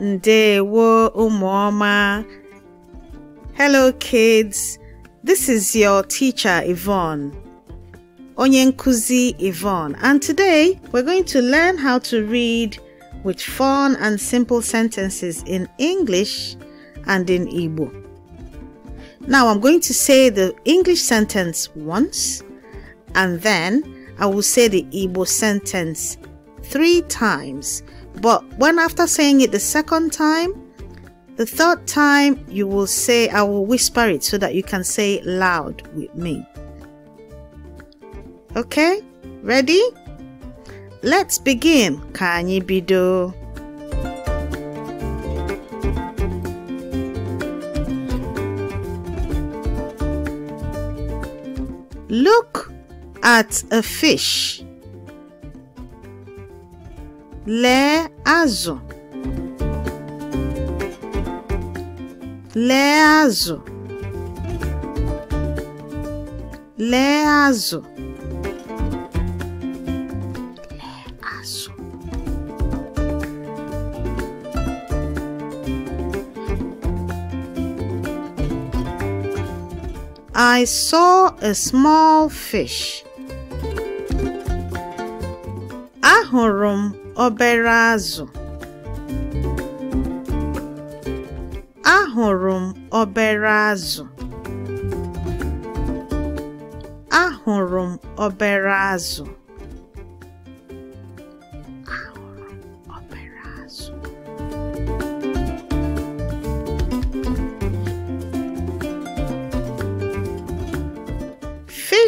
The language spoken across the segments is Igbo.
Ndewo Umoma. Hello kids, this is your teacher Yvonne. Onyenkuzi Yvonne and today we're going to learn how to read with fun and simple sentences in English and in Igbo. Now I'm going to say the English sentence once and then I will say the Igbo sentence three times but when after saying it the second time, the third time you will say, I will whisper it so that you can say it loud with me. Okay, ready? Let's begin. Kanye bido. Look at a fish lee azụ lee azụ lee azụ I saw a small fish. obere azụ ahụrụ m obere azụ ahụrụ m obere azụ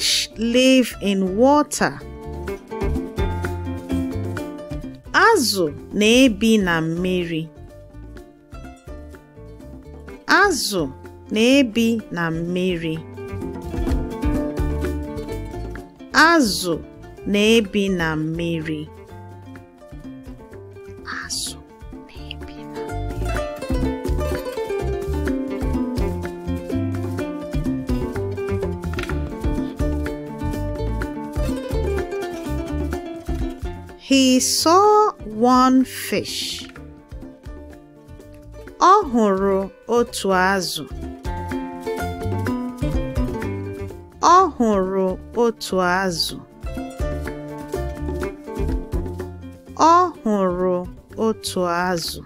Fish live in water. Azụ na-ebi na mmiri. Azụ na-ebi na mmiri. one fish. Ọ hụrụ otu azụ. Ọ hụrụ otu azụ.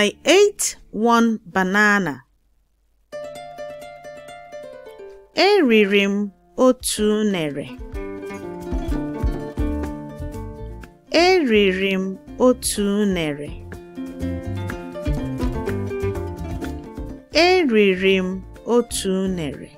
I ate one banana. Eriri m m otu unere. Eriri m otu unere.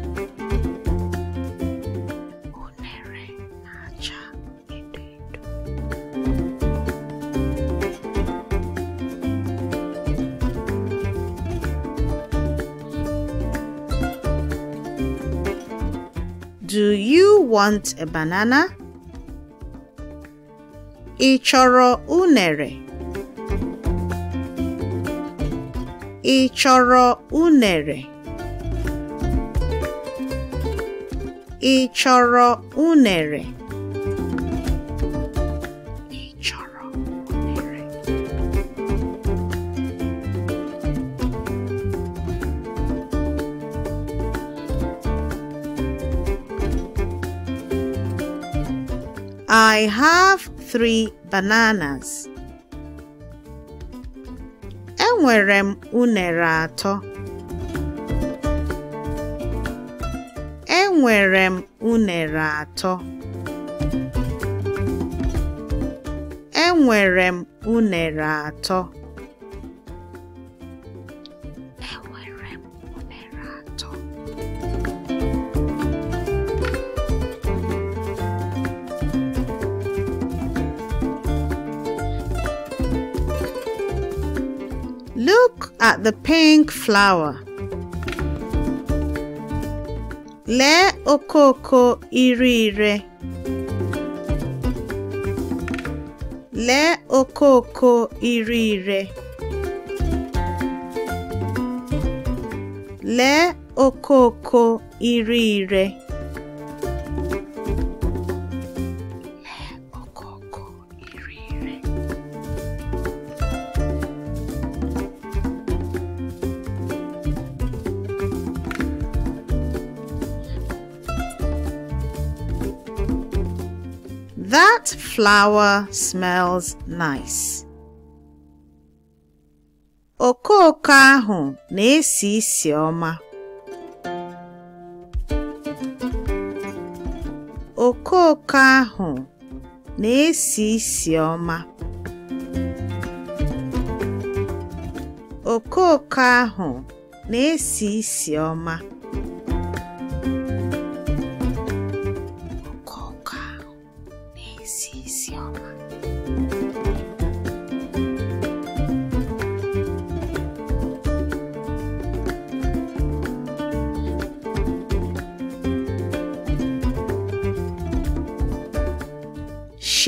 Do you want a banana? Ị chọrọ unere? Ị chọrọ unere? I have three bananas. Enwere m unere atọ. Enwere m unere atọ. Enwere m unere atọ. at the pink flower. Le okoko ire ire. Le okoko ire Le Lee okoko ire ire. flower smells nice. O ahụ na-esi isi ọma. Okooko ahụ na-esi isi ọma. Okooko ahụ na-esi isi ọma.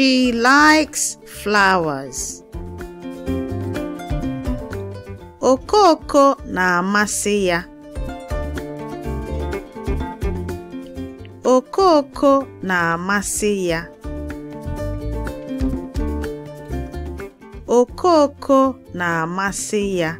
She likes flowers. Okoko na-amasị ya. Okoko na-amasị ya. Okoko na-amasị ya.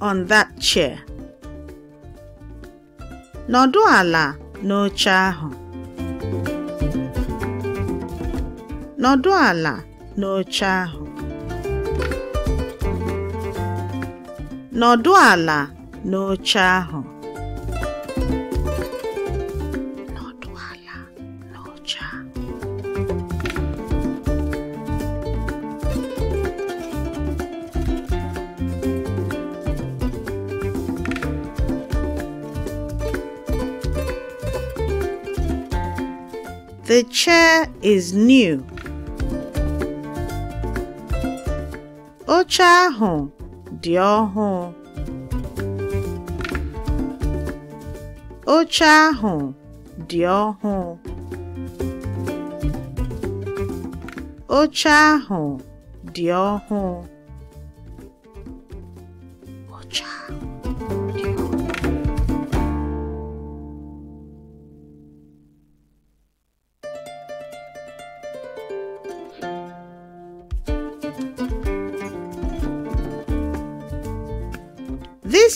on that chair. Nọdụ ala n'oche ahụ. Nọdụ ala n'oche ahụ. The chair is new. Ocha ahụ dị ọhụụ. Ocha ahụ dị ọhụụ. Ocha ahụ dị ọhụụ.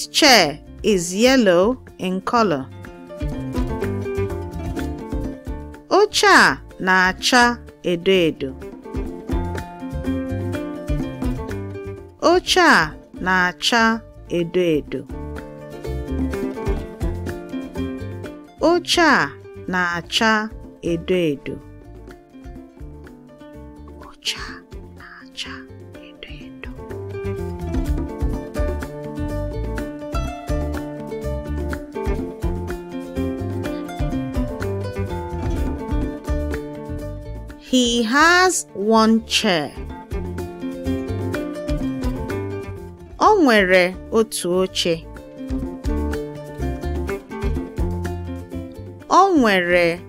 This chair is yellow in color. Oche a na-acha edo edo. Oche a na-acha edo edo. Oche a na-acha edo edo. He has one chair. Ọ nwere otu oche. nwere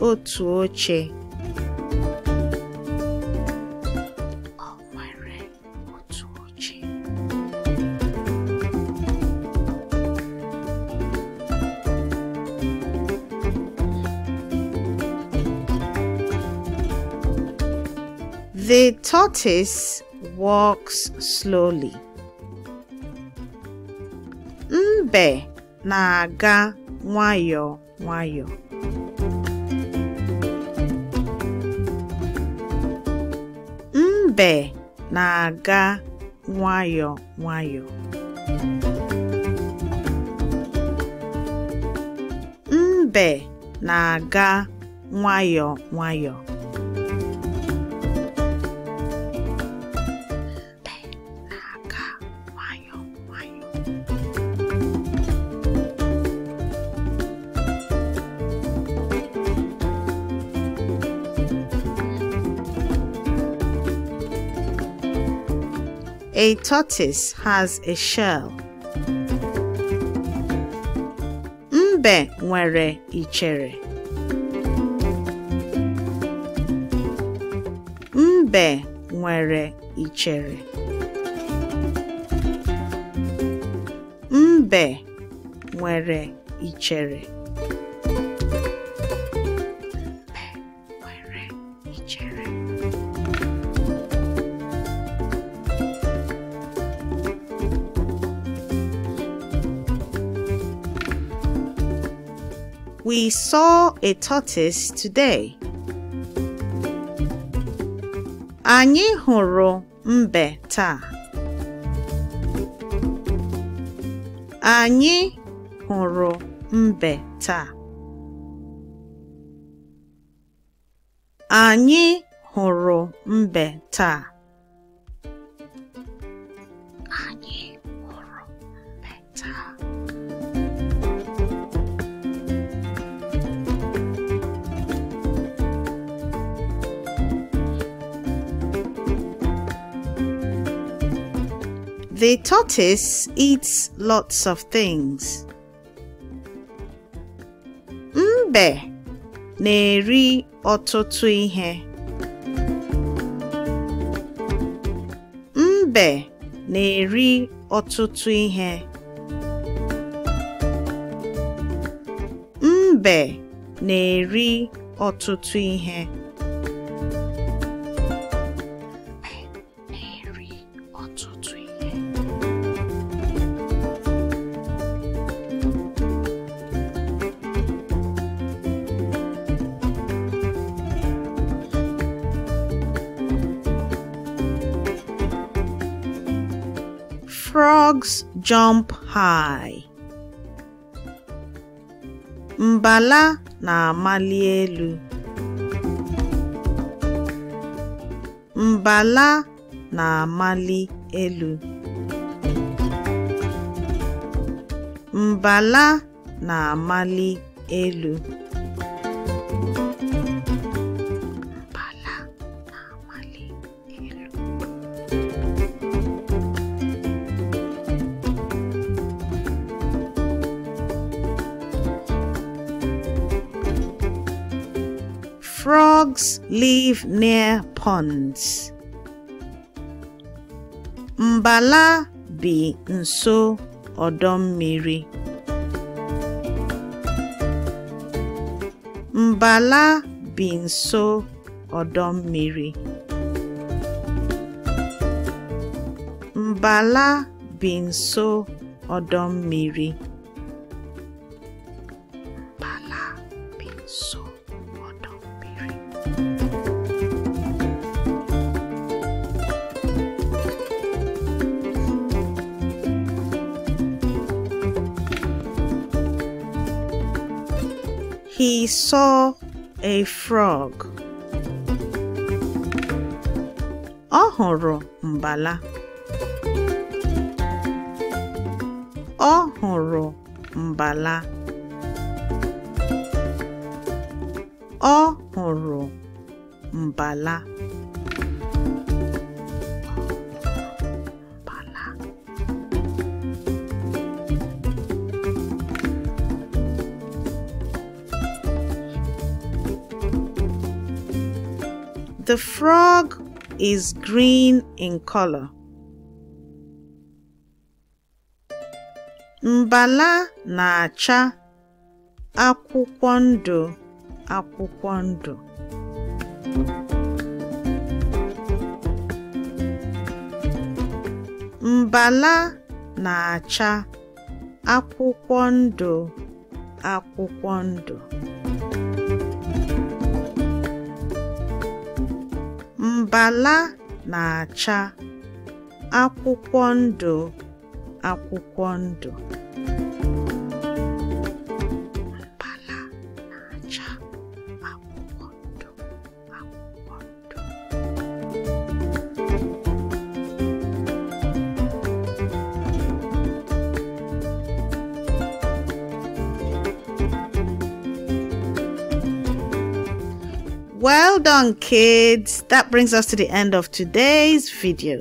otu oche. The tortoise walks slowly. Mbe na-aga nwayọọ nwayọọ. Mbe na-aga nwayọọ nwayọ Mbe na-aga nwayọọ nwayọ A tortoise has a shell. Mbe nwere ichere. Mbe nwere ichere. Mbe nwere ichere. i saw a tortoise today. Anyị hụrụ mbe taa. Anyị hụrụ mbe taa. Anyị hụrụ mbe taa. The tortoise eats lots of things. Mbe na-eri ọtụtụ ihe. Mbe na-eri ọtụtụ ihe. Mbe na-eri ọtụtụ ihe. Frogs jump high. Mbala na-amali elu. Mbala na-amali elu. Mbala na-amali elu. Frogs live near ponds. Mbala bi nso ọdọ mmiri. Mbala bi nso ọdọ mmiri. saw a frog. Ọ hụrụ mbala. Ọ hụrụ mbala. Ọ hụrụ mbala. The frog is green in color. Mbala na-acha akwụkwọ ndụ akwụkwọ ndụ. Mbala na-acha akwụkwọ ndụ akwụkwọ ndụ done kids that brings us to the end of today's video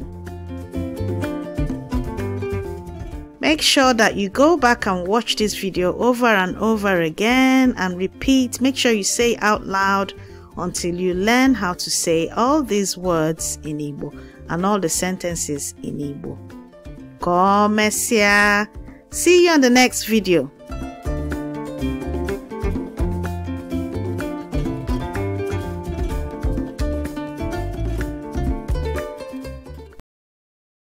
make sure that you go back and watch this video over and over again and repeat make sure you say out loud until you learn how to say all these words in Igbo and all the sentences in Igbo. Come, See you on the next video.